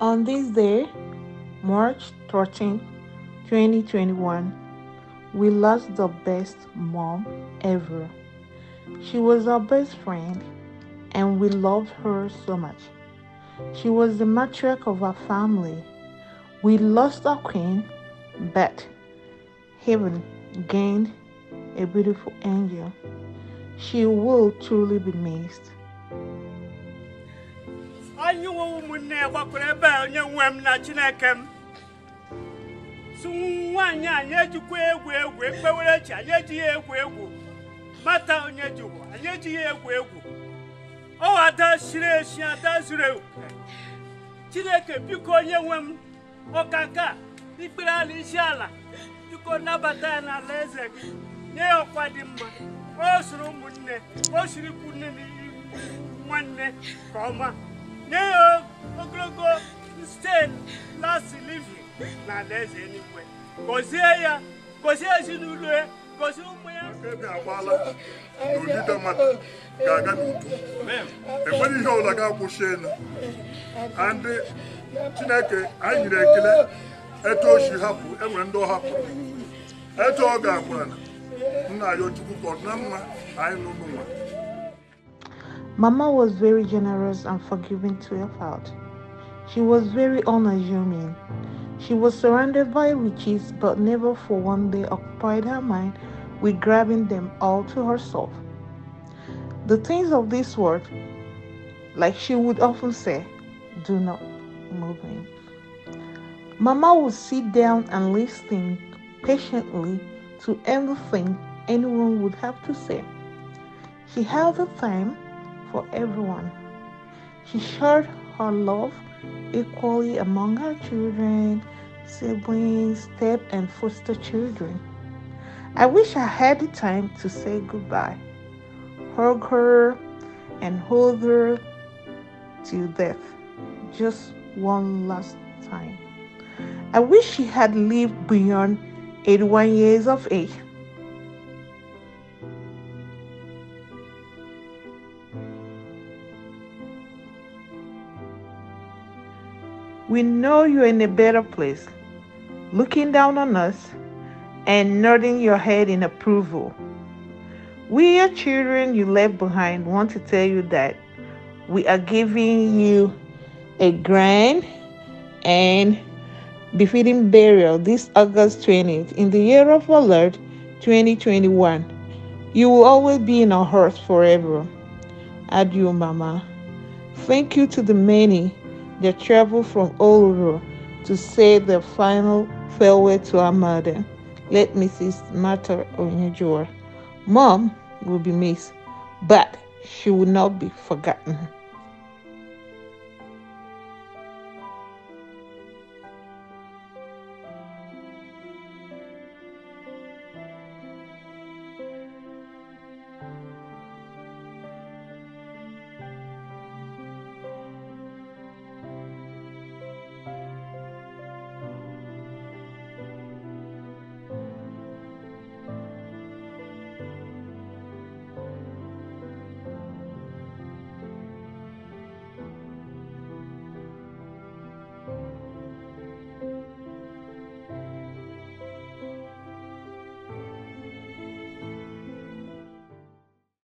On this day, March 13, 2021, we lost the best mom ever. She was our best friend and we loved her so much. She was the matriarch of our family. We lost our queen, but heaven gained a beautiful angel. she will truly be missed. anyị nwe ụmụnne ya gbakwara ebe a onye nwe m na chineke m sụ nwaanyị anyị ejikwa egwu egwu ekpewere chi anyị ejighị egwu egwu mata onye jikwa anyị ejighị egwu egwu ọ ada siri esi ada zuru ewu chineke biko onye nwe m ọka ikpere ala isi ala biko nabata ya n'ala eze gị nye ya ọkwa dị mma o soro ụmụnne o siri ikwu nne nwanne nke ọma nye ya ogologo sten lasi livi na alaeze gọzie ya gọzie ezinụlọ ya gọzie ụmụ ya ebe ga-aga n'udo enwere ihe ọla ga-akwụsị elu ndị chineke anyị nyere ekele etu o si hapụ enwere ndị ọ hapụrụ etu ọ ga Mama was very generous and forgiving to her child. She was very unassuming. She was surrounded by riches, but never for one day occupied her mind with grabbing them all to herself. The things of this world, like she would often say, do not move me. Mama would sit down and listen patiently to everything anyone would have to say. He held the time for everyone. She shared her love equally among her children, siblings, step and foster children. I wish I had the time to say goodbye, hug her, and hold her till death, just one last time. I wish she had lived beyond 81 years of age. We know you're in a better place, looking down on us and nodding your head in approval. We, your children you left behind, want to tell you that we are giving you a grand and befitting burial this August 20th in the year of our Lord 2021. You will always be in our hearts forever. Adieu, Mama. Thank you to the many they traveled from over to say their final farewell to our mother, late Mrs. Martha Onyejua. Mom will be missed, but she will not be forgotten.